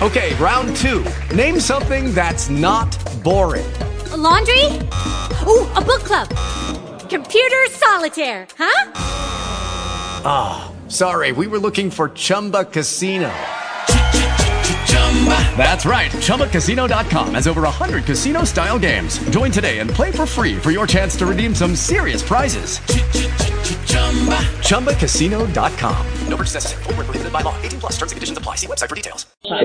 Okay, round two. Name something that's not boring. A laundry? Ooh, a book club. Computer solitaire, huh? Ah, oh, sorry, we were looking for Chumba Casino. That's right. ChumbaCasino.com has over 100 casino style games. Join today and play for free for your chance to redeem some serious prizes. ChumbaCasino.com. No purchase necessary. Full prohibited by law. 18 plus terms and conditions apply. See website for details. I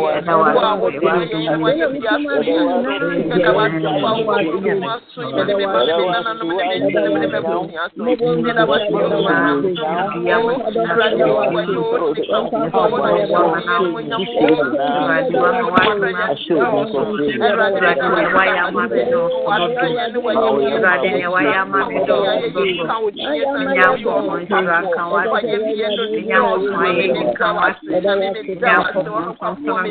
you.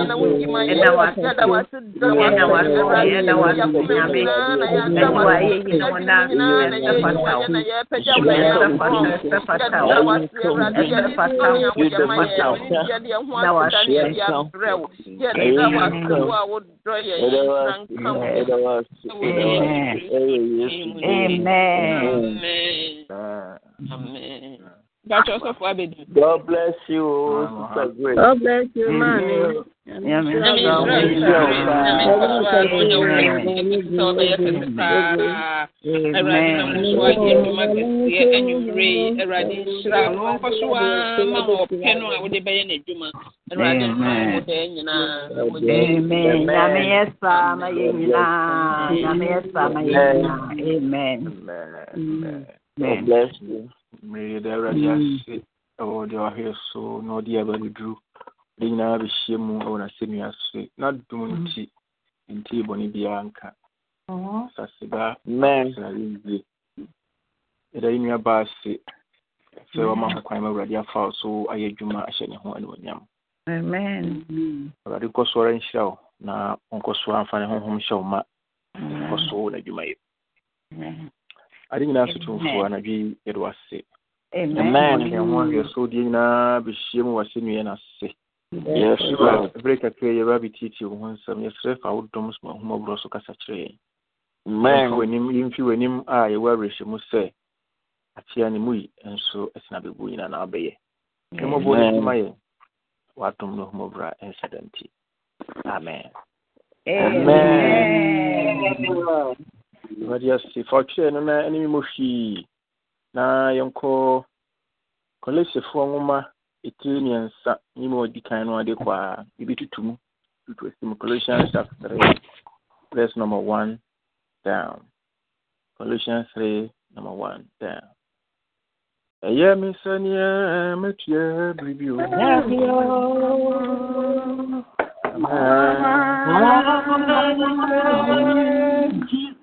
Amen. Amen. Amen. Dr. Joseph Wabedu. God bless you, Sister Grace. God bless you, man. Amen Amen Amen God bless you mmereyɛ da awurade hmm. ase ɛwɔ deɛ wahwɛ so na ɔde aba no duru de nyinaa bɛhyia mu ɛwɔ n'asɛnnua se n'adom nti nti bɔne biara nka saseba srade ye ɛda yɛ nua baa se sɛ wama ho kwan ma awurade afa wo so ayɛ adwuma ahyɛ ne ho animonyam awurade nkɔ so ara nhyira wo na ɔnkɔ so amfa ne honhom hyɛ wo ma nkɔ so n'adwumayɛ ate nyinaa so tomfoɔ na bi wase amen ne yɛn ho ahwɛ mu wase nnua no a berɛ kakra yɛba bɛtietie wo ho nsɛm fa wo dɔm so kasa kyerɛ yɛn mmaa w'anim a yɛwɔ awerɛhyɛ mu sɛ akyea ne mu yi nso ɛtena bɛbu nyinaa na abɛyɛ mmɔbɔ no soma yɛn w'adom no ahomaborɔ a ɛnhyɛ da nti amen amen wari ase no na hwii na yɛnkɔ nwoma ɛtiri mmiɛnsa ɔdi kan no ade kɔ a tutu mu tutu asi mu three verse number one down colossians three number one down ɛyɛ me biribi o Ah,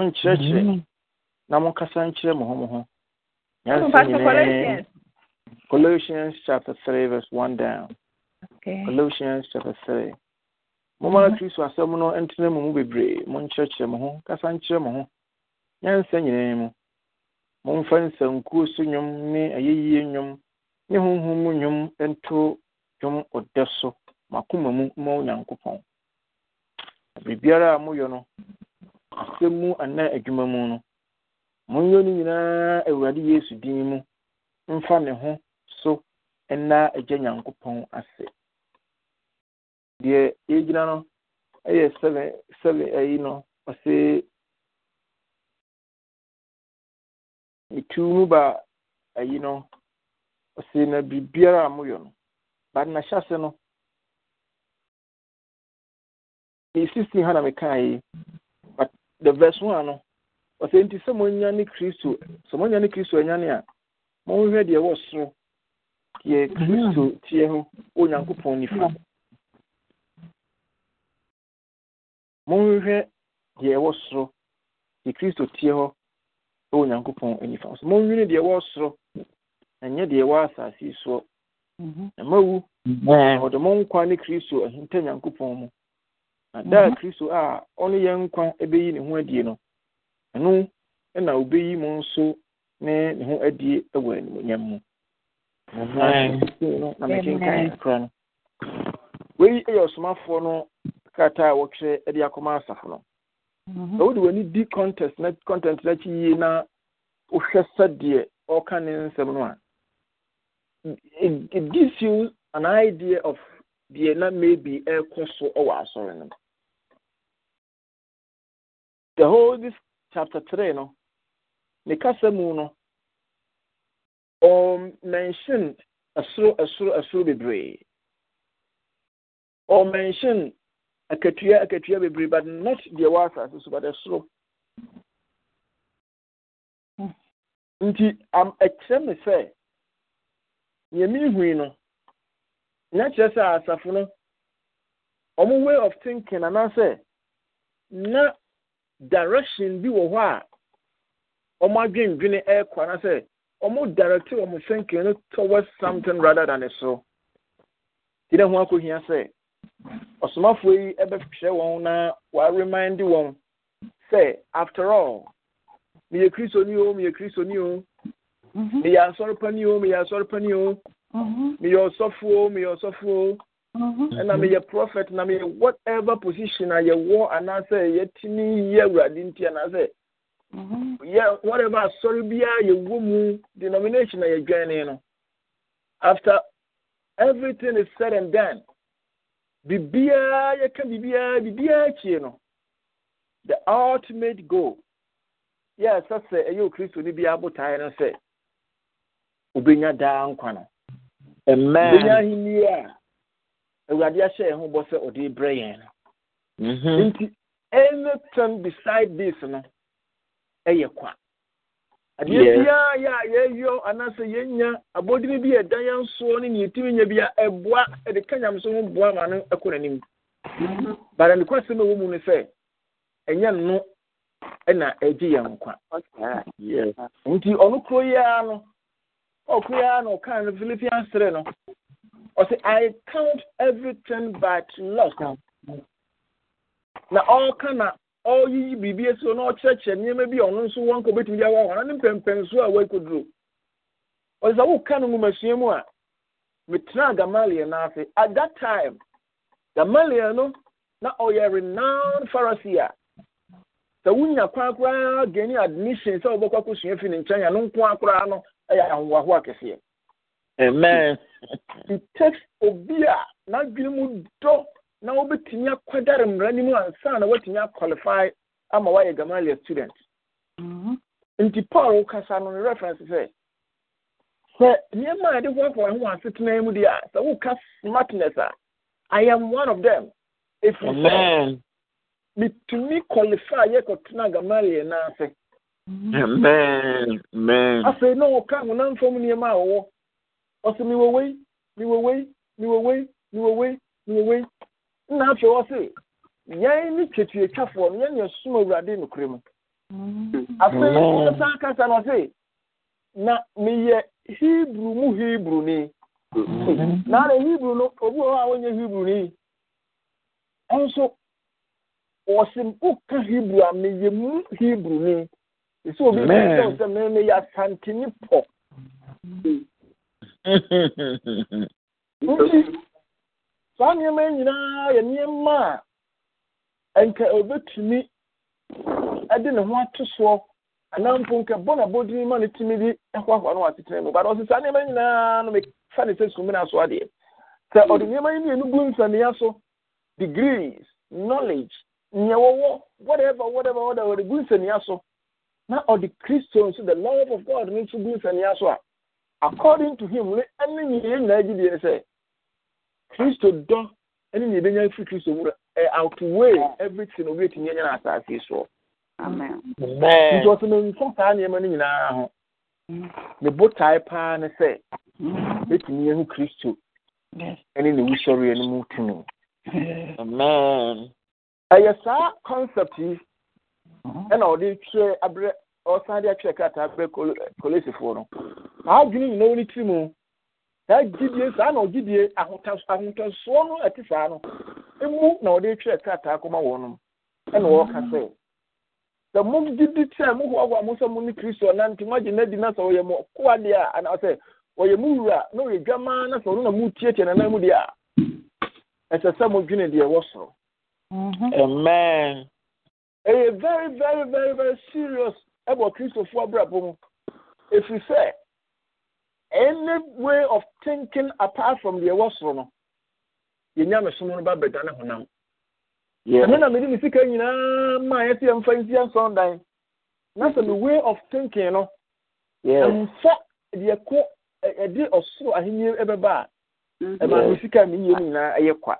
monkyerɛkyerɛ na monkasa nkyerɛ mo ho mo ho Colossians chapter 3 verse one down. Colossians chapter 3. Momara Kristo asɛm no ntena mu mu bebree monkyerɛkyerɛ mo ho kasa nkyerɛ mo ho nyansa nyinaa mu momfa nsankuo so nnwom ne ayɛyie nnwom ne honhom mu nnwom nto dwom ɔdɛ so makoma mu ma onyankopɔn biribiara a moyɛ no asɛm mu anaa adwuma mu no monyɛ no nyinaa awurade yesu din mu mfa ne ho so ɛna agya nyankopɔn ase deɛ yɛgyina no ɛyɛ sɛbɛ sɛbɛ ayi no ɔse metu mu ba ayi no ɔse na biribiara a moyɛ no bade nahyɛ ase no ne sisi ha na mekae yi the verse one no ɔsɛ nti sɛ monya ne kristo sɛ monya ne kristo anyane a monhwɛ deɛ ɛwɔ soro yɛ kristo teɛ ho onyankopɔn nifa monhwɛ deɛ ɛwɔ soro yɛ kristo teɛ hɔ onyankopɔn nifa so monwene deɛ ɛwɔ soro ɛnyɛ deɛ ɛwɔ asase soɔ ɛma mhm. wu ɔde mo nkwa ne kristo ahinta nyankopɔn mu daa mhm. kristo a ɔne nkwa bɛyi ne ho adie no ɛno na obɛyi mu nso ne ne ho adie wɔ animonyam mu na kora no wei yɛ ɔsomafoɔ no krataa a de akɔma asafo no mhm. wode w'ani di contest na content no akyi yie na wohwɛ sɛdeɛ ɔka ne nsɛm no a it gives you an idea of deɛ na maybe ɛrekɔ so asɔre no the whole this chapter 3 no ne kasa mu no ɔmmention um, ɛsoro ɛsoro ɛsoro bebree mention akatua akatua bebree but not deɛ wɔ asase so but ɛsoro nti am ɛkyerɛ me sɛ nea mehui no na kyerɛ sɛ asafo no ɔmo way of thinking anaasɛ na direction bi wɔ hɔ a ɔmo adwendwene ɛrekɔ anasɛ ɔmo direct ɔmo thinking no towards something rather than so ti dɛ ho akɔhia sɛ ɔsomafoɔ yi ɛbɛhwɛ wɔn na wɔaremind wɔn sɛ after all meyɛ kristoni o meyɛ kristoni o meyɛ asɔrepa ni o meyɛ asɔrepa ni o mhm. mhm. meyɛ ɔsɔfo o meyɛ ɔsɔfo o. ɛna mm-hmm. meyɛ prophet na meyɛ whatever position a yɛwɔ anaasɛ yɛtumi yɛ awurade nti anaasɛ yɛ whatever asɔre biara yɛwɔ mu denomination a yɛdwane no after everything is said and done biribiara yɛka biribiara biribiara kyie no the ultimate goal yɛ sɛ sɛ ɛyɛ okristo no biara botae no sɛ obɛnya daa nkwa no obɛnya ahenni a awurade ahyɛ yɛn ho bɔ sɛ ɔde brɛ yɛn no mhm. nti anything beside this no ɛyɛ kwa adeɛ biara yɛ a yɛyɔ anaasɛ yɛnya abɔdini bi ne yɛtumi nya bia ɛboa ɛde ka nyame ho boa ma no ɛkɔ n'anim mhm. bara ne kwasɛm ɛwɔ mu no no ɛna ɛgye yɛn nkwa nti ɔno kuro yi ara no ɔkuro yi ara na. ɔsɛ i count everything but loss na ɔreka na ɔreyiyi biribi esi na ɔkyerɛkyerɛ nneɛma bi a ɔno nso wɔn nka obetumi de awa wɔn ne mpɛmpɛnso a wɔakoduro ɔsɛ sɛ woka no nwumasua mu a metena gamaliel at that time gamaliel no na ɔyɛ renowned pharisee a sɛ wonya kwan koraa gani admission sɛ wobɛkɔ akosua fi no no Amen. text obi a n'adwene mu dɔ na wobɛtumi akwadare mmara no mu ansa na woatumi aqualify ama woayɛ gamaliel student mhm. nti paul kasa no ne reference sɛ sɛ nneɛma a yɛde hoahoa ho asetena mu deɛ a sɛ woka smartness a i am one of them ɛfiri sɛ metumi qualify yɛkɔtena gamaliel no ase mhm. afei na wɔka honamfam nneɛma a wɔwɔ Ọ ọsị miwowe miwowe miwowe miwowe miwowe nna ha twere ọsị yẹn ni twetwetwafoɔ no yɛn na ɛsom awurade nokorɛ mu mm. afei ɔsan kasa no ɔse na ọsị, na meyɛ Hibru mu Hibru ni na ara hebrew no obi wɔ hɔ a wɔnyɛ hebrew ni nso wɔsi woka hebrew a meyɛ mu Hibru ni esi obi sɛ ɔsɛ mɛmɛ yɛ asantini pɔ. saa nneɛma nyinaa yɛ nneɛma a nka obetumi de ne ho ato soɔ anaa mpo nka bɔ na bɔdini ma ne tumi bi ahoahoa no watetena mu baadɔ sɛ saa nneɛma nyinaa no mefa ne sɛ sumina so adeɛ sɛ ɔde nneɛma yi mmienu gu mfania so degrees knowledge nea whatever whatever whatever ɔde gu mfania so na ɔde kristo nso the love of god no nso gu mfania so a according to him ne ɛne nyinaa nyinaa gyi deɛ sɛ kristo dɔ ɛne nea ebenya firi kristo wura ɛ outweigh everything obi etumi ɛnyɛ na asaase soɔ nti ɔsɛ mɛnfa saa nneɛma no nyinaa ho ne mm. botae paa ne sɛ etumi mm. ehu kristo ɛne ne wusɔreɛ no mu tumi amen ɛyɛ saa concept yi mm-hmm. ɛna ɔde twɛ abrɛ ɔsan de atwerɛ krataa bɛ kolesifoɔ no saa adwene nyinaa wɔ mu saa gidiye saa na ɔgyidie ahotasoɔ no ɛte saa no emu na ɔde twerɛ krataa kɔma wɔn no ɛna ɔreka sɛ sɛ mo mo hoahoa mo sɛ mo ne na mo agye n'adi na sɛ ɔyɛ mo deɛ ɔyɛ mo wura na ɔyɛ dwamaa na sɛ ɔno na mo nanan mu deɛ ɛsɛ sɛ mo deɛ ɛwɔ soro amen. very, very, very, very serious ɛwɔ kristofoɔ abrabɔ mu ɛfiri sɛ any way of thinking apart from deɛ ɛwɔ soro no yɛnya me som no ba bɛdane honam ɛno na mede me sika nyinaa ma yɛte yɛmfa nsi yɛnsɔndan na sɛ me way of thinking no ɛmfa deɛ kɔ ɛde ɔsoro ahenni ɛbɛba a mm-hmm. ɛma me sika me yie no nyinaa ɛyɛ kwa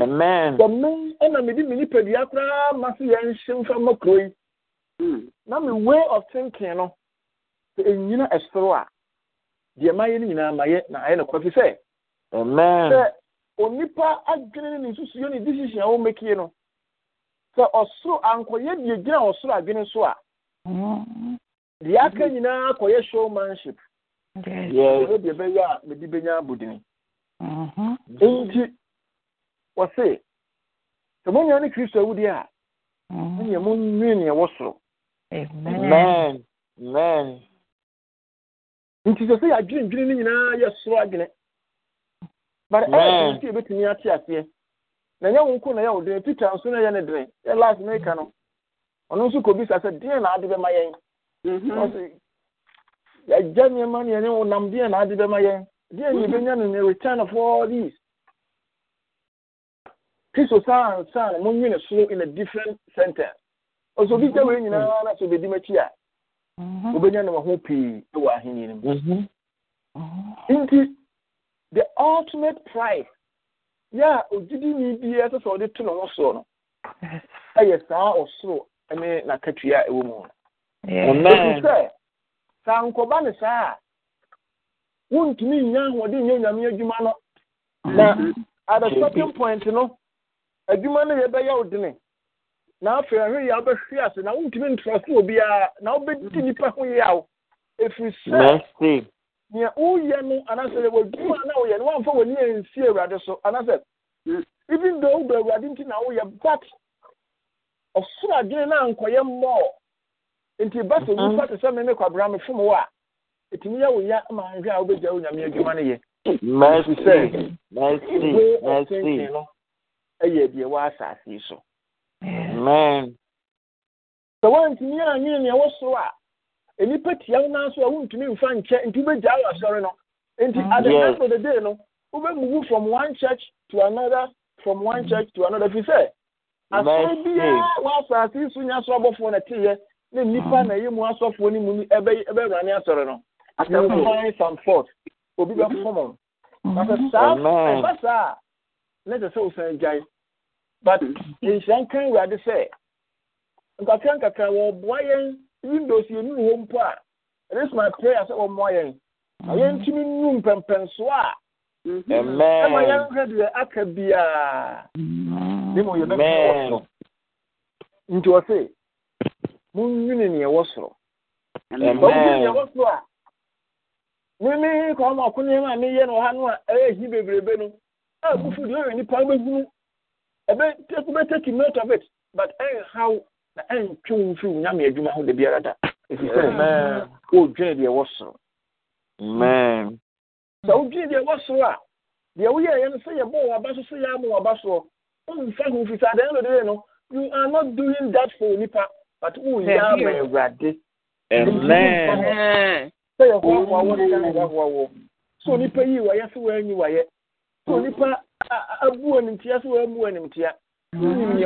amen sɛ me ɛna mede me nipadua koraa ma so yɛnhye mfa ma kuro yi Hmm. na mi way of thinking no enyina ɛsoro a deɛ ma yɛ no nyinaa ma na ayɛ no kɔfi sɛ sɛ onipa adwene ne nsusuo ne decision a wɔmɛkie no sɛ ɔsoro ankɔyɛ deɛ gyina ɔsoro adwene so a deɛ aka nyinaa akɔyɛ showmanship ɛno deɛ bɛyɛ a mede bɛnya abodini mm-hmm. nti wɔse sɛ monya ne kristo awudeɛ a mm-hmm. ɛneɛ monwee neɛ soro Amen. Amen. Amen. nti sɛ sɛ yɛadwenedwene no nyinaa yɛsoro adwene bare eh, ɛyɛ sɛ yɛbɛtumi ate aseɛ na ɛnyɛ wo nko na ɛyɛ wo dene peter nso no ɛyɛ ne dene yɛ las na ɛka no ɔno nso kɔbisa sɛ deɛ na ade bɛma yɛn mhm. yɛagya nneɛma ne ɛne wo nam deɛ na ade bɛma yɛn deɛ ne yɛbɛnya no ne return of all these kristo saa ansa na monwene soro in a different sentence ọsọ obi gya wei mm-hmm. nyinaa na sọ obedi a mm-hmm. obenya nam ho pii wɔ ahenni no mu mm-hmm. nti the ultimate pride yɛ a ogyidini biara sɛ sɛ ɔde to ne ho soɔ no ɛyɛ saa ɔsoro ne n'akatua a ɛwɔ mu no ɛfi sɛ saa nkɔba ne saa a wontumi nnya ahoɔden nyɛ onyame adwuma no na at a certain point no adwuma no yɛbɛyɛ ya dene na afei ahwe yɛ wobɛhwe ase na wontumi ntrɔso obiara na wobɛdi nnipa ho yaw ɛfiri sɛ nea woyɛ no anaasɛ wadwuma na woyɛ no woamfa w'ani ansi awurade so anaasɛ even ahụ awurade nti na woyɛ but ɔsoro adwene no ankɔyɛ mmɔɔ nti ba sɛ mm-hmm. te sɛ me ne kwabra me fom a ɛtumi yɛ wo ya ma nhwɛ a wobɛgya wo adwuma no yɛ ɛfiri sɛ ɛyɛ deɛ wɔ asase so amen sɛ woantumi anyene nea ɛwɔ soro a nnipa tia wo naa so a wontumi mfa nkyɛ nti wobɛgyaa wɔ asɔre no nti mm, at the end of the day no wobɛmuwu from one church to another from one mm. church to another firi sɛ asɔre biara wɔasase so nya so abɔfoɔ no teeɛ na nnipa mm. na ɛyɛ mu asɔfoɔ no mu no ɛbɛwurane asɔre no asɛmfan some fort obi bɛfɔm no na sɛ mm-hmm. saa ɛba saa a na ɛsɛ sɛ wosan gyae but nhyira nka awurade sɛ nkakra nkakra wɔboa yɛn windows yɛn nuru mpo a it is my prayer sɛ wɔmmoa yɛn na yɛntumi nnu mpɛmpɛnsoɔ a ɛma yɛnhwɛ deɛ aka ne mu soro nti ɛwɔ soro ɛwɔ a meme kɔma ɔko nneɛma a meyɛ no ọha no a ɛyɛ hi bebrebe no a bufu ɛbɛtaki note of it but ɛnhaw na ɛntwe wo mfiri wo nyame adwuma ho da biara da ɛfiri sɛ wodwene deɛ ɛwɔ soro sɛ wodwene deɛ ɛwɔ soro a deɛ woyɛɛyɛ no sɛ yɛbɔɔ waba so sɛ yɛama waba soɔ womfa ho mfiri sɛ adɛn lodere no you are not doing that for Nipa, but woyɛ ama awurade sɛ yɛhoahoa wɔ ne yɛhoahoa wɔ so onipa yii wayɛ sɛ woanyi wayɛ so Nipa. abu nea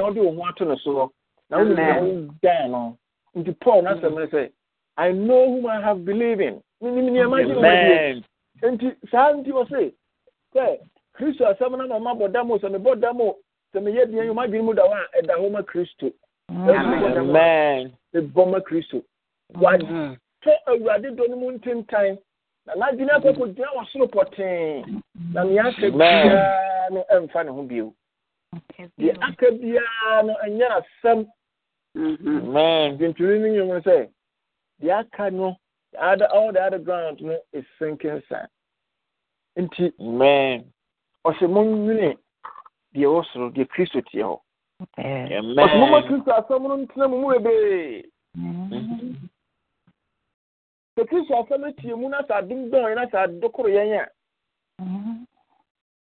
wo ho ato soɔ na nea no nti paul ne sɛ i know whom i have believed in nti saa nti wɔ se sɛ kristo asɛm sɛ sɛ deɛ yɛ mu da hɔ a ɛda hɔ ma kristo ma kristo awurade dɔ mu ntentan na n'adwene akɔkɔ gyina wɔ soro pɔtee na ahyɛ no ɛmfa ne ho bio deɛ aka biara no ɛnyɛ asɛm ntintini no nwom no sɛ deɛ aka no all ground no is sinking sand nti kristo teɛ hɔ ɔsɛ kristo asɛm no ntena mu mu bebree mm-hmm. kristo asɛm no mu na sɛ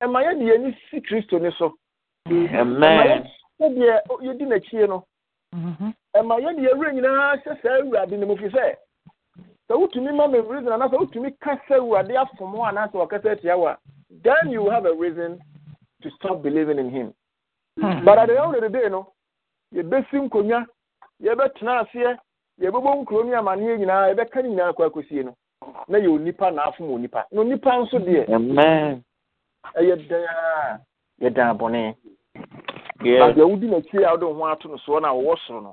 ɛma ya di ni si kristo ni so mm-hmm. ɛma yɛ deɛ yɛdi n'akyi no ɛma yɛ deɛ ewura nyinaa na saa ewurade ne mu fi sɛ sɛ wotumi ma me reason anaasɛ wotumi kasa ewurade afɔm hɔ anaasɛ wakasa eti awa. then you have a reason to stop believing in him hmm. but at the end of the day no yɛbɛsi nkonnwa yɛbɛtena aseɛ yɛbɛbɔ nkuro ne amanneɛ nyinaa yɛbɛka ne nyinaa kɔ akɔsie no na ya onipa na afom onipa na onipa nso ya. ɛyɛ dɛn a yɛ dan abɔne badeɛ wodi n'akyi a wode wo ho ato no soɔ no a wɔwɔ soro no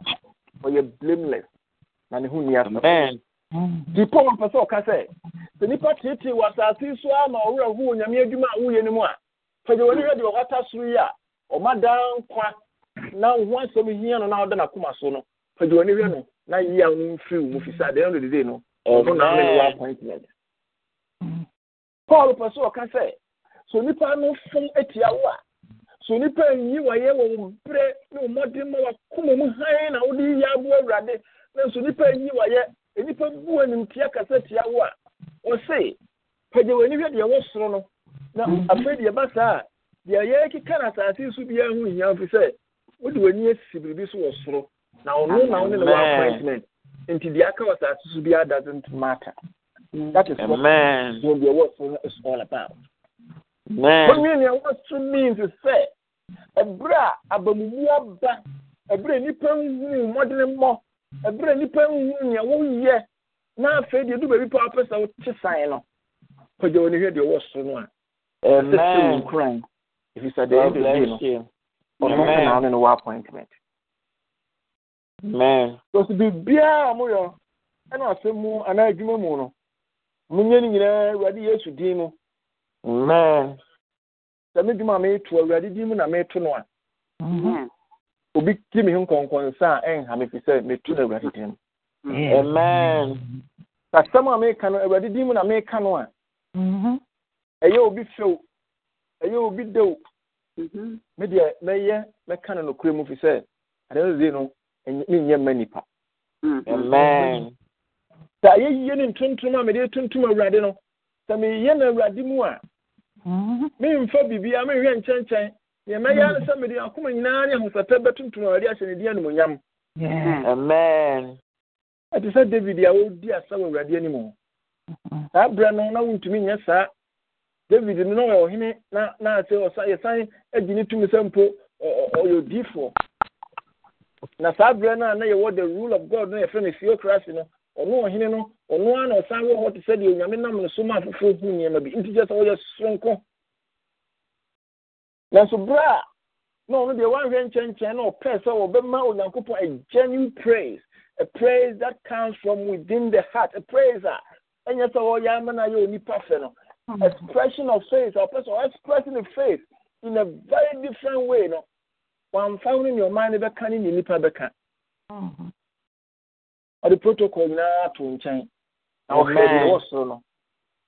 ɔyɛ blameless na ne ho nni asɛm nti paul pɛ sɛ ɔka sɛ sɛ nnipa teetee wɔ asase so a ma ɔwerɛ ho wɔ nyame adwuma a woyɛ no mu a fagya w'ani hwɛ deɛ ɔkata soro yi a ɔma daa nkwa na wo ho asɛm hia no na ɔda n'akoma so no fagya w'ani hwɛ no na yi a mfiri wo mu firi sɛ no dedee no ɔno na ne wɔ appointment paul pɛ sɛ ɔka sɛ so nipa no fun etia wo a so nipa nyi wɔyɛ wɔ wɔn brɛ ne wɔn mɔden ma wakoma mu hann na wɔde yɛ abo awurade na So nipa nyi wɔyɛ nipa bu wɔn tia kasa tia wo a wɔse pagya wɔn anihwɛ deɛ ɛwɔ soro no na afei deɛ ba saa deɛ yɛ keka na asase so bi ɛho nyinaa fi sɛ wɔde wɔn ani esi biribi so wɔ soro na ɔno na ɔne na wɔn appointment nti deɛ aka wɔ asase so bi doesn't matter that is what deɛ ɛwɔ soro no is all about wɔnwe nea wɔso means sɛ ɛberɛ a abamumu aba ɛberɛ a nnipa nhuu mmɔdene mmɔ ɛberɛ a nnipa nhuu nea woyɛ na afei deɛ du baabi pa wopɛ sɛ wote san no pagya wɔ ne hwɛ deɛ ɔwɔ so no a ɛsɛsɛ wo nkuran ɛfiri sɛ deɛ ɛdɛ bi no ɔno kana ne appointment because biribiara a moyɛ ɛna asɛm mu anaa adwuma mu no monyɛ no nyinaa awurade yesu din mu amen sɛ me dwuma a awurade din mu na meeto no a obi ti me nkɔnkɔnsa a ɛnha me fi sɛ meto no awurade din mu amen asɛm a meka no awurade din mu na meka no a mm-hmm. ɛyɛ obi few ɛyɛ obi dew mm-hmm. me deɛ mɛyɛ mɛka no mu fi sɛ no mma nipa mm-hmm. amen sɛ yie ne a tuntum awurade no sɛ meyɛ no awurade mu a memfa mm-hmm. biribia menhwɛ nkyɛnkyɛn deɛ mɛyɛ no mm. sɛ mede akoma nyinaa ne ahosɛpɛ bɛtontom awurade ahyɛ ne din animonyam amen ɛte sɛ david a wɔdi asa wɔ awurade anim mm-hmm. saa berɛ no na wontumi nyɛ saa david no na ɔyɛ ɔhene na yɛsan agyi ne tumi sɛ mpo ɔyɛ odiifoɔ na saa berɛ no a na yɛwɔ the rule of god no yɛfrɛ no theocracy no ɔno ɔhene no ɔno ara na ɔsan wɔ hɔ te sɛ deɛ onyame nam no so ma afoforɔ hu nneɛma bi nti kyɛ sɛ ɔyɛ soronko nanso berɛ a na ɔno deɛ wanhwɛ nkyɛnkyɛn na ɔpɛɛ sɛ wɔbɛma onyankopɔn a genuine praise a praise that comes from within the heart a praise a ɛnyɛ sɛ wɔyɛ ama no ayɛ onipa fɛ no hmm. expression of faith ɔpɛ sɛ expressing the faith in a very different way no wamfa wo ne ne ɔman no bɛka ne ne nipa bɛka ɔde protocol nyinaa to nkyɛn na ɔhwɛ deɛ ɛwɔ soro no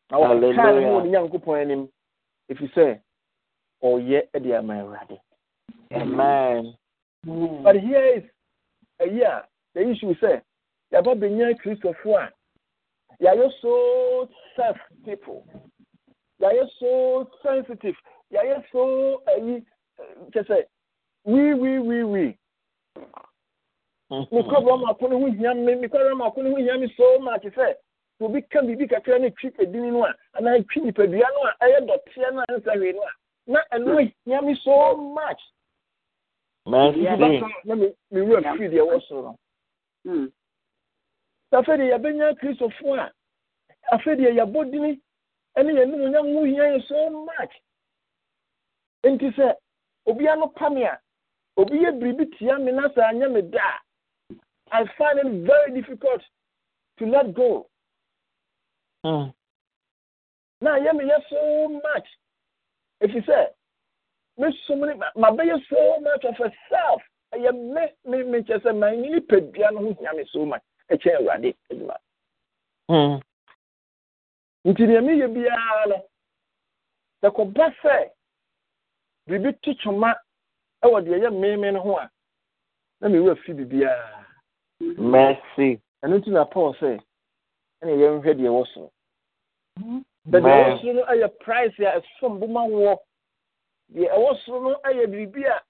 na ɔkaa ne wɔ ne nyankopɔn anim sɛ ɔyɛ de ama awurade amen hmm. but here is ɛyi the issue sɛ yɛaba bɛnya kristofoɔ a yɛayɛ so self people yɛayɛ so sensitive yɛayɛ so ɛyi kyɛ sɛ we we we we mekɔbrɛ mako no ho hia me no ho hia me so much sɛ sɛ obi ka biribi kakra no twi adini no a anaa twi nipadua no a ɛyɛ dɔteɛ no a hwee no a na ɛno hia me so much na mewura firi deɛ ɛwɔ soro no sɛ deɛ yɛbɛnya kristofoɔ a afei deɛ yɛbɔ dini ɛne yɛnom nya ho hia yɛ so much nti sɛ no pa me a obi yɛ biribi tia me na sɛ anyɛ me da I find it very difficult to let go. Mm. Now, hear me, hear so much. If you say, me so many, my baby so much of herself. I am me, me, me, just a man, you pay piano, me so much. A chair, ready, Edma. Hm. Nti deɛ meyɛ biara no sɛkɔba sɛ biribi to kyoma wɔ deɛ ɛyɛ meme no ho a na mewura fi biribiara mercy ɛno nti na paul say ɛna yɛnhwɛ deɛ ɛwɔ soro mm-hmm. bɛde ɛwɔ soro no ɛyɛ price a ɛsom no biribi a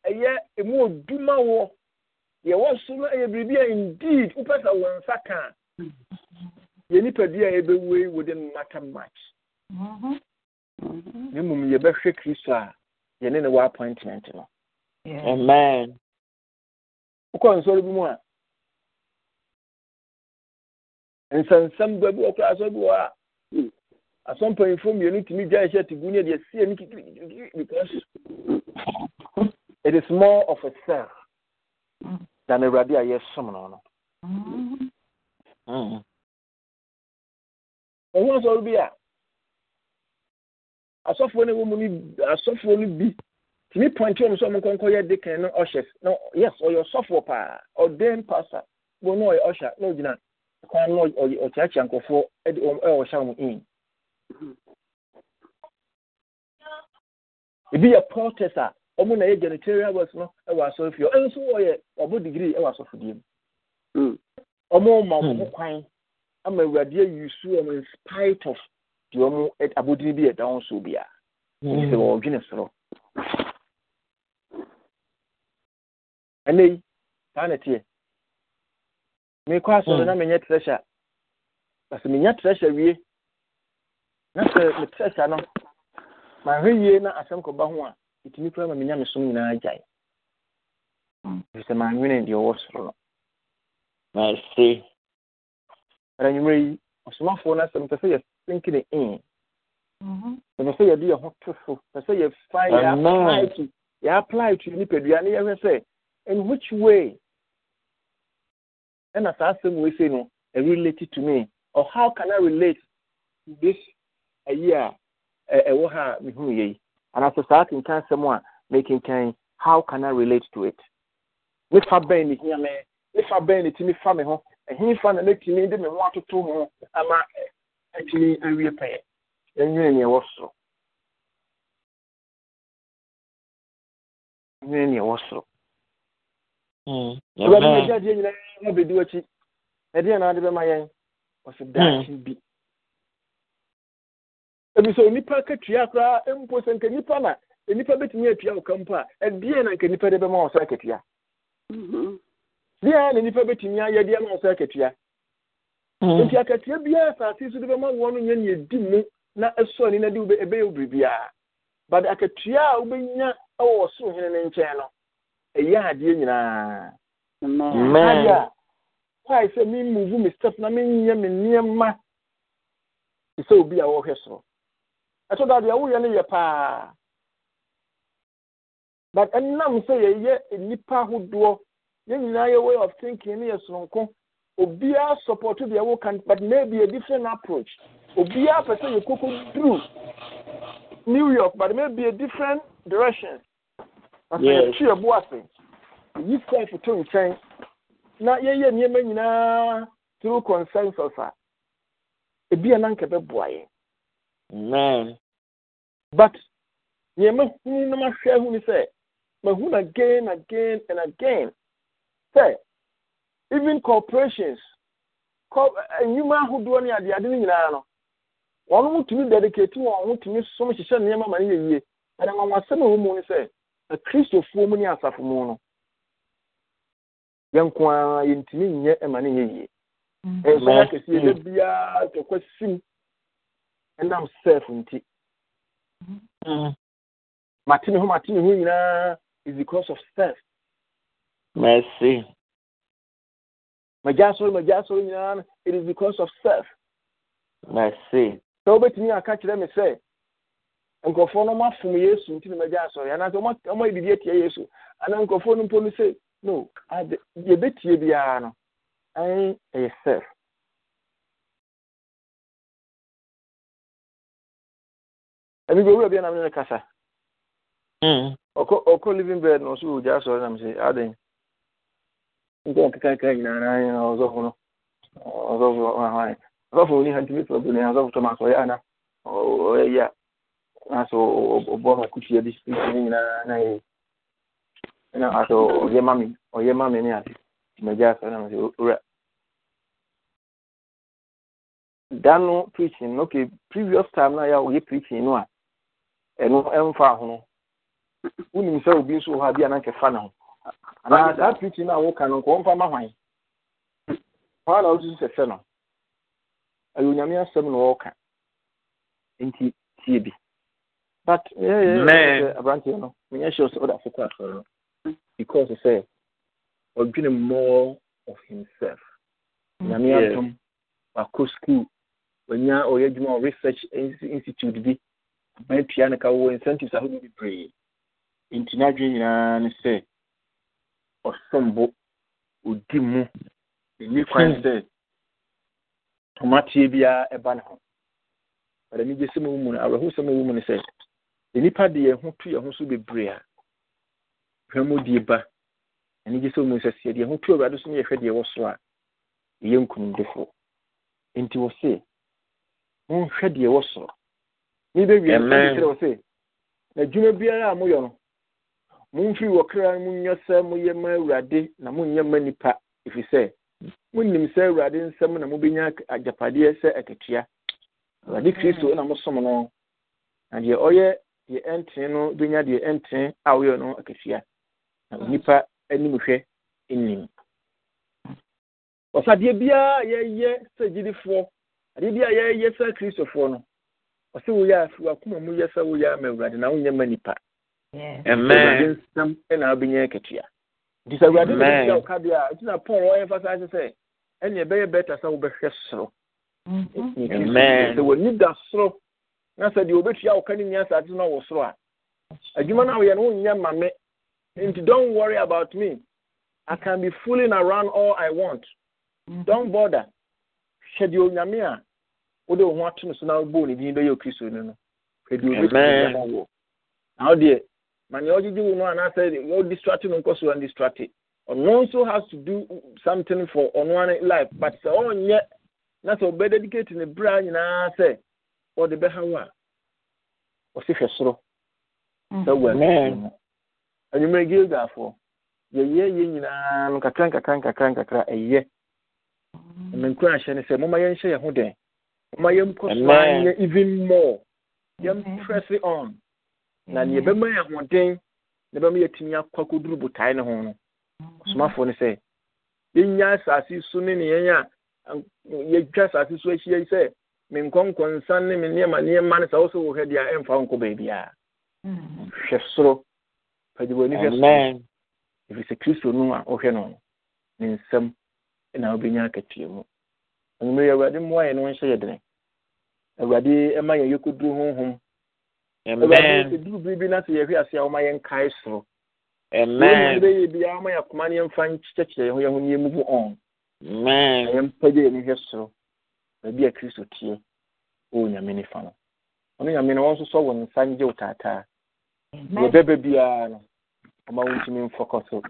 emu no biribi indeed wopɛ sɛ wɔn nsa ka a yɛ nipadua a yɛbɛwu yi within matter much mm-hmm. Mm-hmm. na kristo a ne appointment no amen wokɔ nsɔre bi mu a nsɛnsɛm gua bi wɔ koraa asɔ bi wɔ a hmm, asɔ mpanyinfoɔ mmienu tumi gya ɛhyɛ te gu ne deɛ sie ne kikirikiri because it is more of a self than awurade a yɛsom no no ɛho mm-hmm. asɔre bi a asɔfoɔ no wɔ mu no asɔfoɔ no bi tumi pɔnkye wɔn sɛ ɔmo nkɔnkɔ yɛ de kan no ɔhyɛ no yes ɔyɛ ɔsɔfoɔ paa ɔdan pastor wɔn no ɔyɛ ɔhyɛ no, ogyina no kwan no ɔkyeakyea nkɔfoɔ de wɔn ɛwɔ hyɛ wɔn in ebi yɛ pɔtɛs a wɔn na yɛ janitorial works no wɔ asɔrfie ɛnso ɔyɛ ɔbɔ digiri ɛwɔ asɔfodie mu wɔn hmm. ma wɔn hmm. kwan ama awurade ayi su wɔn in spite of deɛ wɔn abodini bi yɛ dan so bia sɛ hmm. wɔredwene soro ɛnna yi saa na teɛ. mekɔ asɔre hmm. na menyɛ treasure menya wie na sɛ me no mahwɛ yie na asɛm kɔba ho a ɛtumi kora ma menya me som nyinaa gyae hmm. maanwene deɛ ɔwɔ soro no yi ɔsomafoɔ no asɛm pɛ sɛ yɛsenkene mm-hmm. sɛ yɛde yɛ ho to so pɛ sɛ yɛfa yɛapply to yɛapply to nipadua ne yɛhwɛ sɛ in which way and as I say, we say, no, it related to me. Or how can I relate to this a year? And as a starting time, someone making time, how can I relate to it? If I bend it here, man, if I bend it to me, he found a little me, didn't want to do I'm actually a repair. And you and you also. You and you also. Hmm. awurade na agya adeɛ nyinaa abɛdi w'akyi na ade bɛma yɛn ɔsɛ daakye hmm. bi ebisɛ onipa ka koraa mpo sɛ nka nipa na nipa atua ka a ɛdeɛ na nka nipa de bɛma wɔ sɛ mm-hmm. na nipa bɛtumi ayɛ deɛ ma wɔ sɛ akatua hmm. nti akatua biara asase so de bɛma wɔn no nyɛ nea mu na ɛsɔ na de ɛbɛyɛ but akatua a wobɛnya ɛwɔ ɔsoro hene ɛyɛ adeɛ nyinaa adeɛ a kwae sɛ memuvu mi step na menyɛ me nneɛma te sɛ obi a wɔhwɛ soro ɛtɔ do adeɛ woyɛ no yɛ paa but ɛnam sɛ yɛyɛ nnipa ahodoɔ yɛn nyinaa yɛ way of thinking no yɛ soronko obiara support deɛ woka but maybe a different approach obiara pɛ sɛ through new york but maybe a different direction I say, yes. tree of blessing. You stand for two chain. Na ye ye nye men yina through consensus a. Ebi anan kebe boye. Amen. But nye men huni na ma share huni say. Ma hun again, again, and again. Say, even corporations, eh, nnwuma ahodoɔ ne adeade no nyinaa no wɔn mo tumi dedicate wɔn ho tumi som hyehyɛ nneɛma ma ne yɛ yie ɛnna wɔn asɛm a wɔn mu ne akristofoɔ mu ne asafo mu no yɛnko ara yɛntumi nyɛ ɛma no yɛ yie mm. ɛnsɔn akɛseɛ yɛ biara tɔkwa sim ɛnam sɛf nti mm. mate ne ho mate ne ho nyinaa is because of self. mercy magya asɔre magya asɔre nyinaa it is because of self. mercy sɛ wobɛtumi aka kyerɛ me sɛ nkurɔfoɔ no mafom yesu nti na magya asɔre anaasɛ ɔma yɛ biribi atia yesu anaa nkurɔfoɔ no mpo no sɛ no ade yɛbɛtie biara no ɛn ɛyɛ self ɛbi bi owura bi anam ne kasa ɔkɔ ɔkɔ living bed na ɔso wɔ gya asɔre nam sɛ aden nti nyinaa na ayɛ na ɔsɔfo no ɔsɔfo ɔsɔfo ni hanti mi bi na ɔsɔfo tɔm aso o bɔma bi ne na ye na aso ɔyɛ ma ɔyɛ ma mi ne ade na owura preaching previous time na ya oye preaching no a ɛno ɛmfa ho no sɛ obi nso wɔ hɔ na ho preaching no ma na wosusu sɛ no ɛyɛ onyame asɛm na bi but yeah, yeah, aberanteɛ no menyɛ sure sɛ wode afokɔ asɔre no because say, sɛ ɔdwene more of himself nyame atom wakɔ school wanya ɔyɛ adwuma wɔ research institute bi bɛtua no ka wɔ incentives ahodoɔ bebree nti n'adwene nyinaa ne sɛ ɔsombo ɔdi mu ɛni kwan sɛ tomateɛ biara ɛba ne ho ɔdɛ megye sɛ mu mu no awerɛho sɛ mu mu no sɛ ɛnnipa de yɛ ho to yɛ ho so bebree a amudie ba ni gye sɛ omusɛseɛdeɛyɛho to awurade son yɛhw deɛ wɔ sorɔ a ɛyɛ nknumdefoɔ nti wɔ se monhwɛ deɛ wɔ soro mebɛwieɛɛ w s nadwuma biara a moyɛ no momfii wɔ kraa no mony sɛ moyɛ ma awurade na monyɛma nnipa ɛfirsɛ monnim sɛ awurade nsɛm na mobɛnya agyapadeɛ sɛ akatua awurade kristo na mosom no na deɛ ɔyɛ deɛ ɛntene no bɛnya deɛ ɛntene a woyɛ no na mm. anim hwɛ nnim biara a yɛyɛ sɛ gyidifoɔ adeɛ biara a yɛyɛ sɛ kristofoɔ no ɔsɛ woyɛ a fi wakoma mu yɛ sɛ woyɛ ama awurade na wonyɛ ma awurade nsɛm wobɛnya akatua nti sɛ awurade woka deɛ a ɛti na paul sɛ ɛneɛ ɛbɛyɛ bɛta sɛ wobɛhwɛ soro sɛ w'ani da soro na sɛ deɛ obetua wo ka ne nya no wɔ soro a adwuma no woyɛ no wonyɛ ma me nti don't worry about me i can be fooling around all i want mm. don't bother hwɛ deɛ onyame a wode wo ho ato no so na wobɔɔ ne din bɛyɛ okristo no no hwɛ deɛ obɛtumi ma wo na wo deɛ ma nea ɔgyegye wo no anaasɛ ɔdistrate no nkɔ so andistrate ɔno nso has to do something for ɔno ane life but sɛ ɔnyɛ na sɛ ɔbɛdedicate ne berɛ nyinaa sɛ ɔde bɛha wo a ɔsi hwɛ soro sɛ wɔ no anwummerɛ gilgafoɔ yɛyɛ yɛ nyinaa nkakra nkakra nkakra nkakra nkakra ɛyɛ me nkura ahyɛ no sɛ moma yɛnhyɛ yɛn ho den moma yɛnkɔ soanyɛ even more yɛmprɛse on na mma bɛma yɛ hoden na bɛma yɛatumi akɔ akɔduru botae no ho no ɔsomafoɔ no sɛ yɛnya asase so ne neɛn a yɛtwa asase so ahyia yi sɛ me ne me nneɛma nneɛma wo so wo hɛ deɛ ɛmfa wo nkɔ baabiaa hwɛ soro hwɛ soro ɛfiri sɛ kristo no a wohwɛ no ne nsɛm na wobɛnya akatua mu anwummerɛ yɛ awurade mmoa yɛ no nhyɛ yɛ dene awurade ɛma yɛkɔduru honhom duru biribi na sɛ yɛhwɛ ase a woma yɛnkae soro biaa ne yɛmfa yɛ ho yɛ ho ɔn hwɛ soro baabi a kristo tie ɔwɔ nyame nifa no ɔno nyame no wɔn nso sɔ wɔ nsa ngye wo taataa yɛbɛba biara no ɔma wo ntumi mfɔkɔ so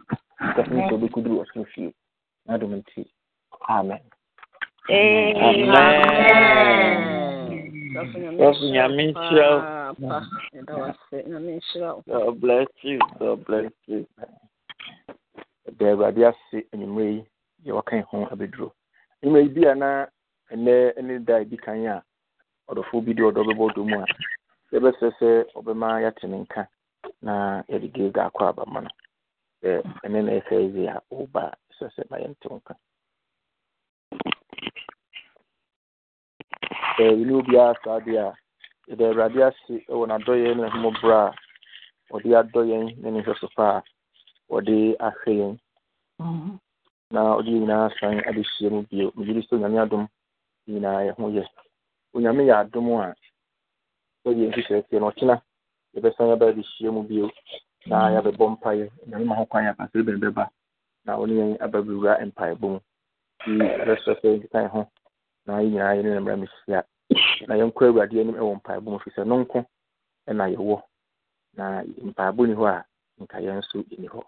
kɔfom sɛ wobɛkɔduru ɔsoro fie na dom nti amen Dɔfo nyame nhyira wo. God bless you. God bless you. Da Awurade ase anwummerɛ yi, yɛwɔ ka ho abɛduro. Anwummerɛ yi bi a na ɛnɛ ne da ebi ɛdi a ɔdɔfoɔ bi deɛ ɔdɔ bɛbɔ a ebe sɛ ɔbɛma yɛate ne nka na yɛde ga akọ akɔ aba na ɛsɛ yie a ɔba sɛ sɛ ma nka. wo ka ɛwene obiara saa deɛ a yɛda awurade ase wɔ n'adɔyɛ ne a ɔde adɔ yɛn ne ne pa a ɔde ahwɛ yɛn mhm. na ɔde nyinaa san adehyia mu bio di sɛ adom nyinaa yɛ ho yɛ onyame yɛ adom a ɔyɛ nhyehyɛeɛ no ɔkyena yɛbɛsan aba abɛhyia mu bio na yɛabɛbɔ mpaeɛ nyame ma ho kwan yɛ apasere bɛn bɛba na ɔne yɛn aba bɛwura mpaebɔ mu nti yɛbɛsrɛ sɛ yɛnkeka ho na yɛ nyinaa ne na yɛnkɔ awurade anim ɛwɔ mpaebɔ mu firi sɛ no nko ɛna yɛwɔ na mpaebɔ ni hɔ a nka yɛn nso ɛni hɔ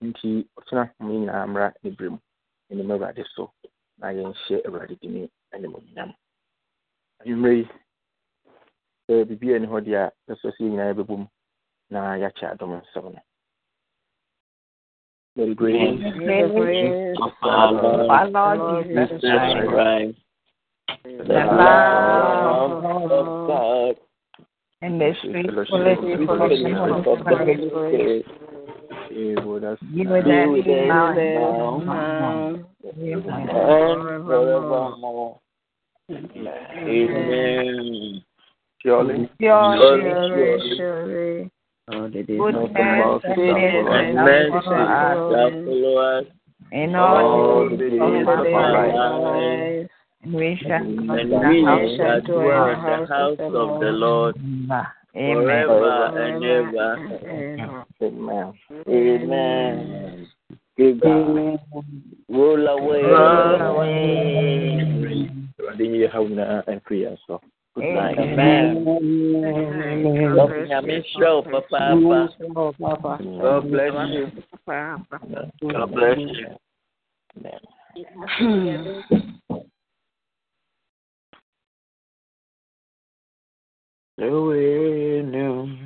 nti ɔkyena mo yɛ nyinaa mmra ne berɛ mu ɛnim awurade so na yɛnhyɛ awurade dini ne anwummerɛ yi sɛ biribi ani hɔ deɛ a sɛ nyinaa na yɛakyɛ adom nsɛm no the love of God, and the of the Holy Spirit is with us. You with us. with us. Forevermore. Amen. Surely. Surely. Surely. Oh, that is no fault and mercy shall follow us in all the days of our lives. We shall dwell in the house of the Lord forever and ever. Mm-hmm. Amen. Amen. Good God. Roll away. Roll away. Continue how now and free us up. Good night. Amen. God bless you, Papa. God bless you. Papa. God bless you. Amen. The way new.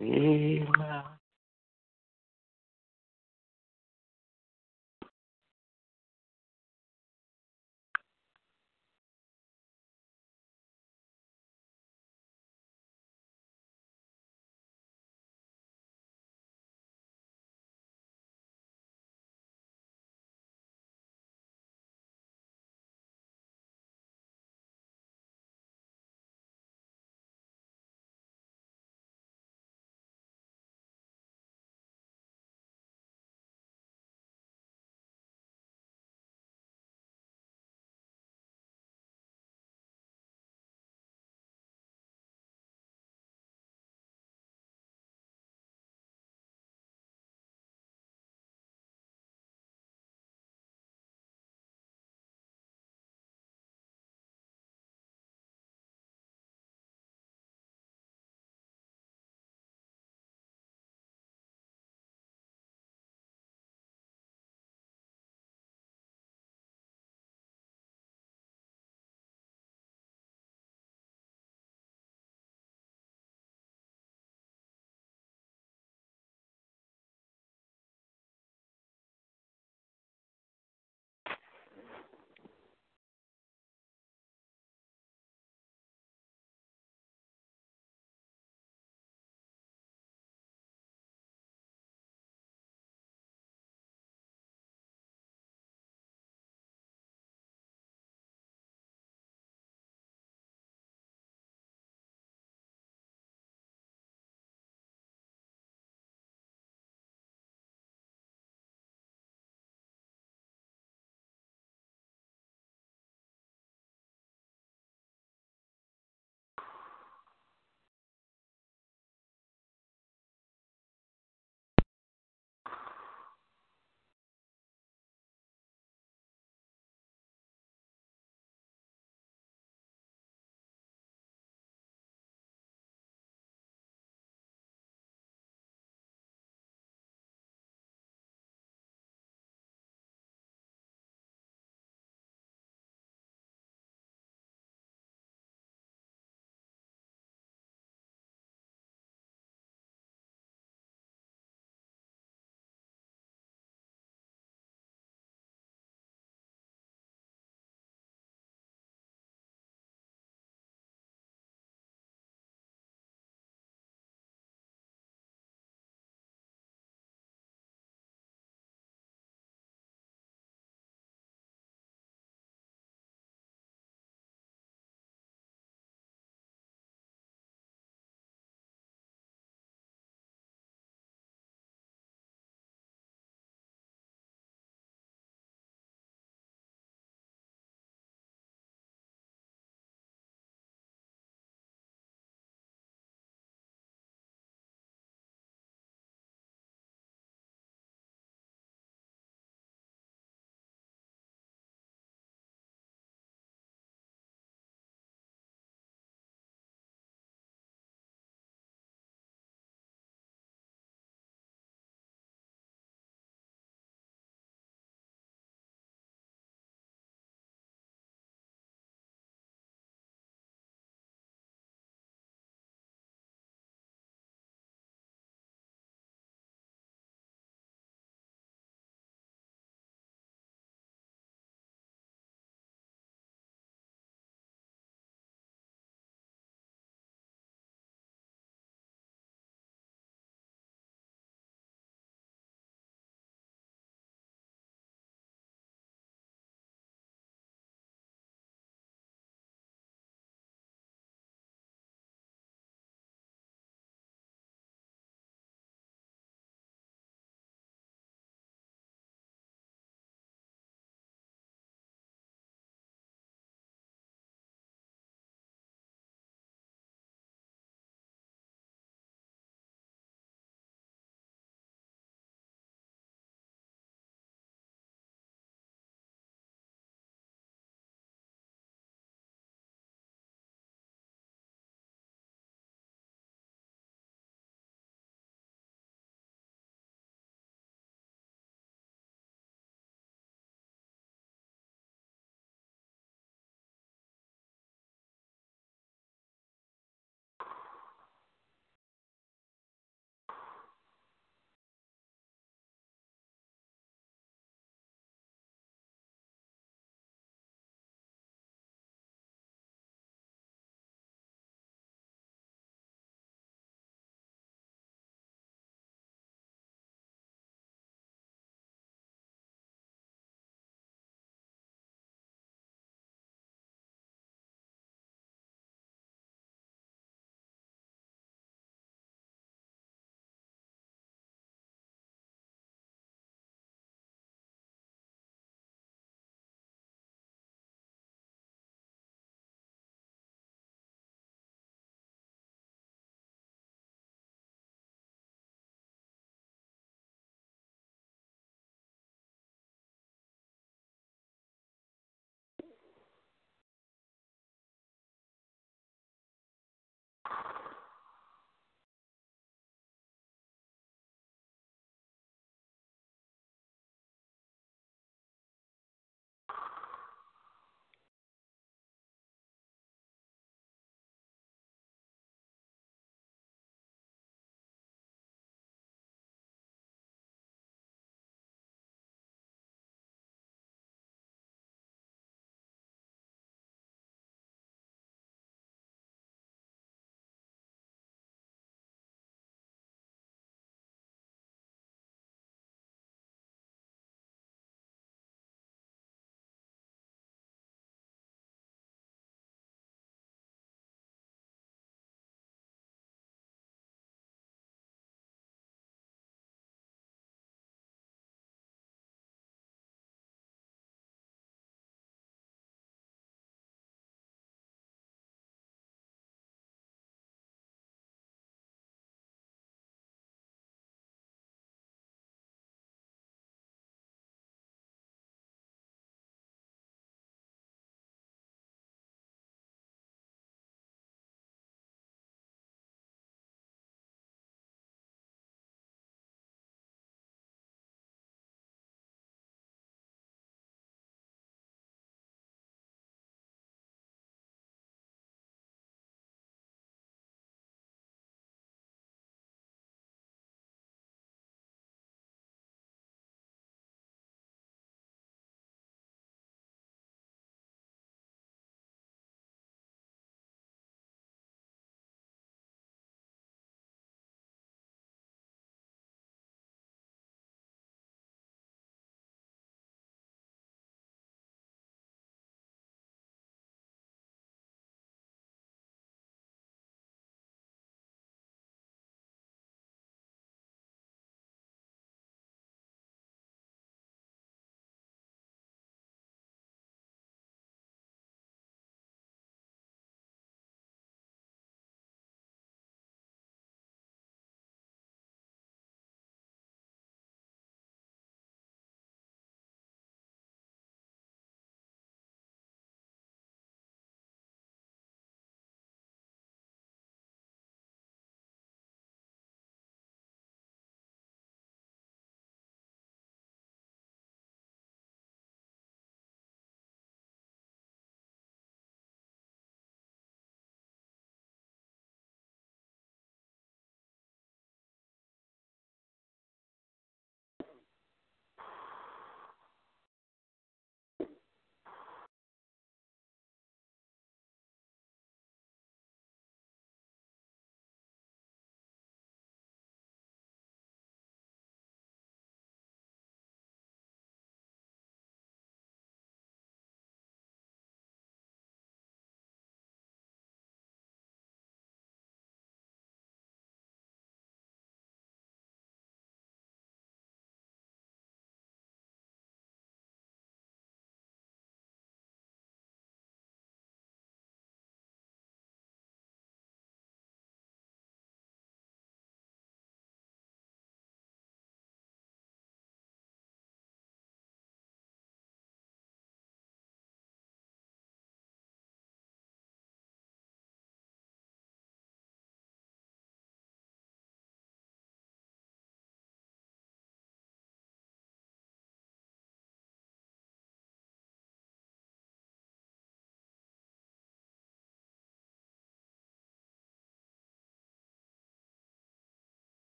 Amen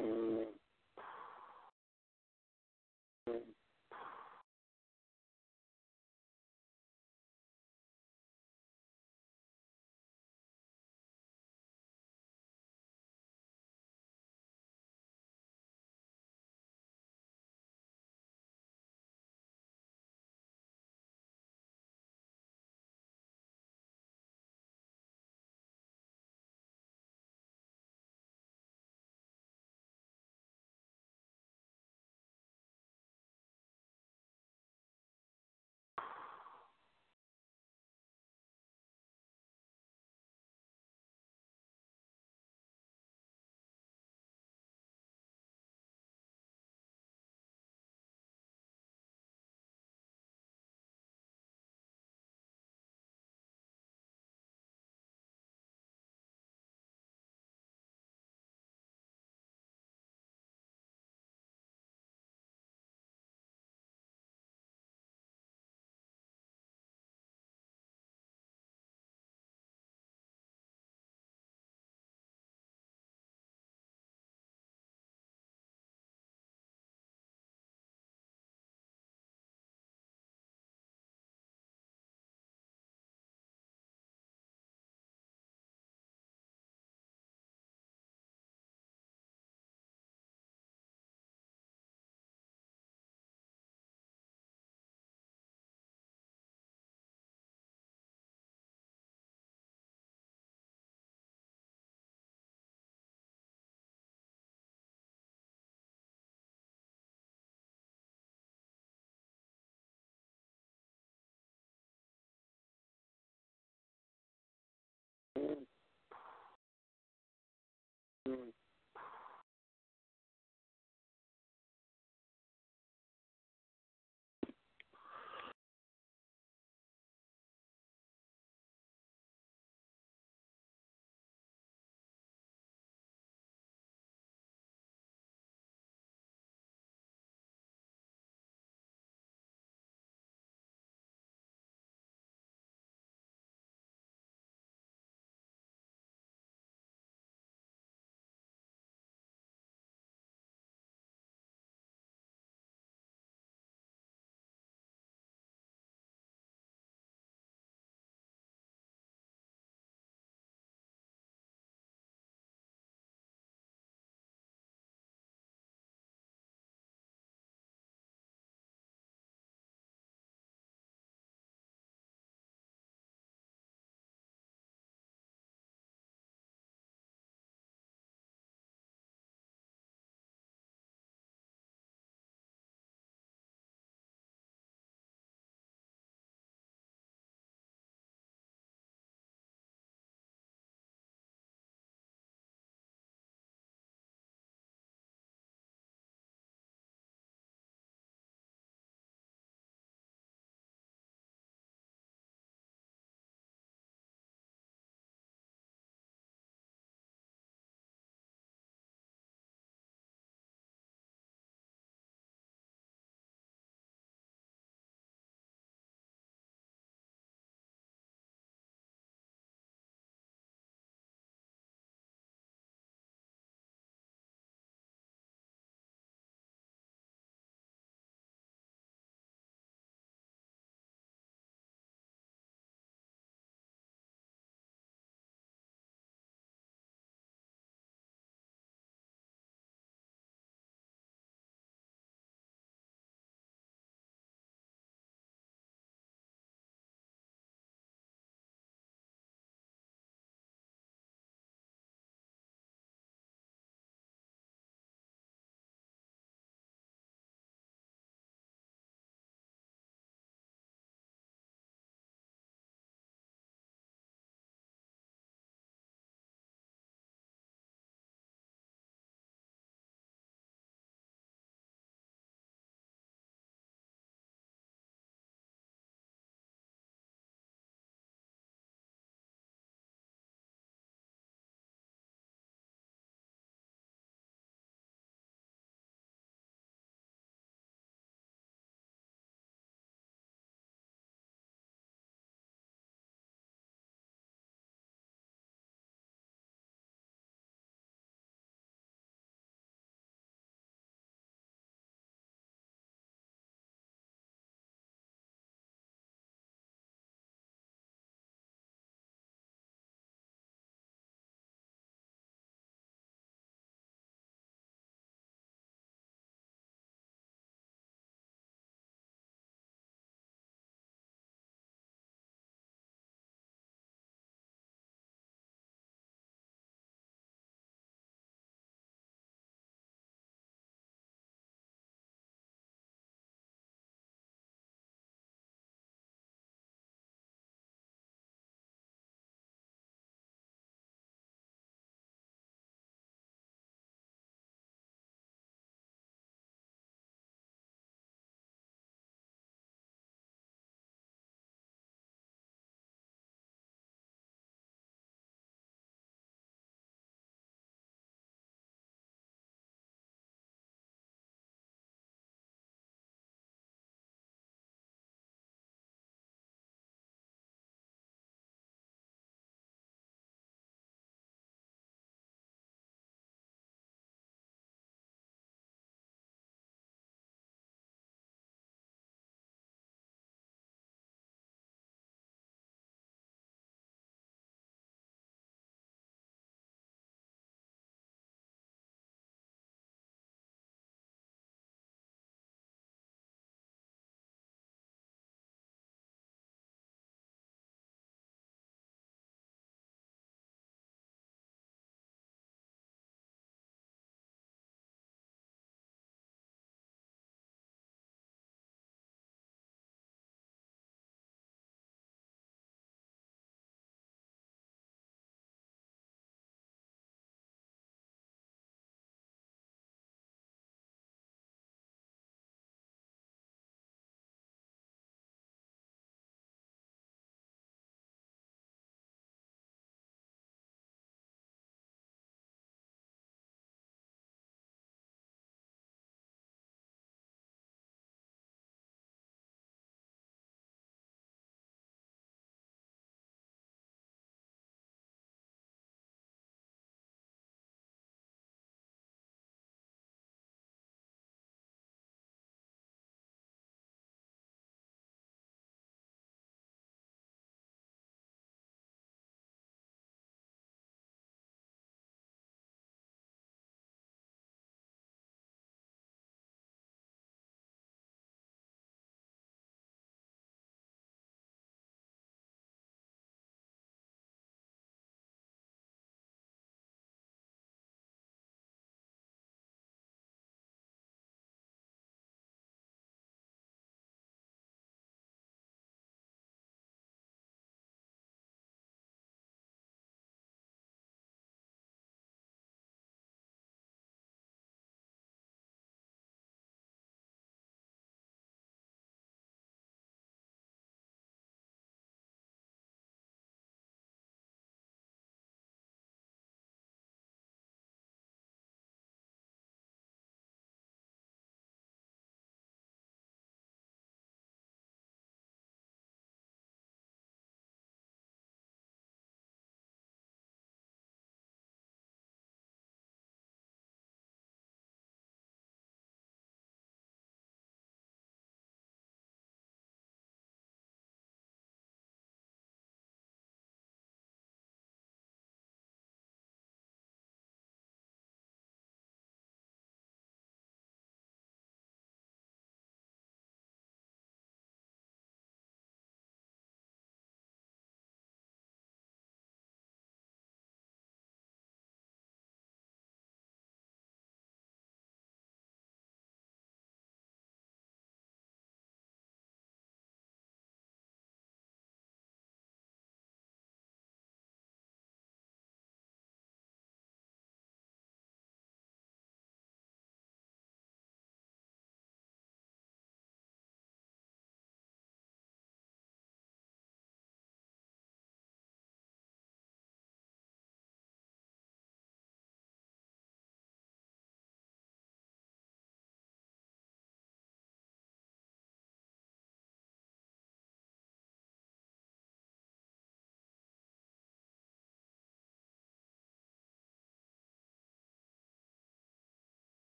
Mm-hmm. Mm.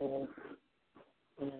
and, and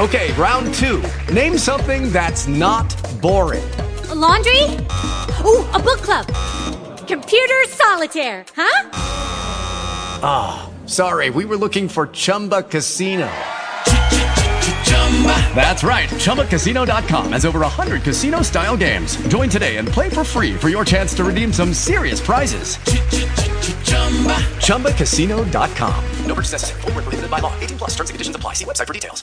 Okay, round two. Name something that's not boring. A laundry? Ooh, a book club. Computer solitaire, huh? Ah, oh, sorry, we were looking for Chumba Casino. That's right. ChumbaCasino.com has over 100 casino style games. Join today and play for free for your chance to redeem some serious prizes. ChumbaCasino.com. No purchase necessary. Full prohibited by law. 18 plus terms and conditions apply. See website for details.